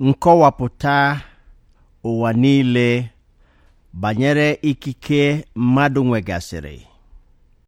nkọwapụta ụwa niile banyere ikike mmadụ nwegasịrị